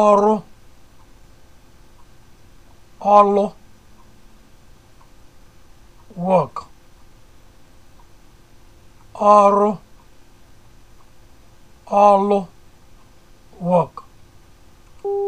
ọrụ ọlụ work ọrụ ọlụ work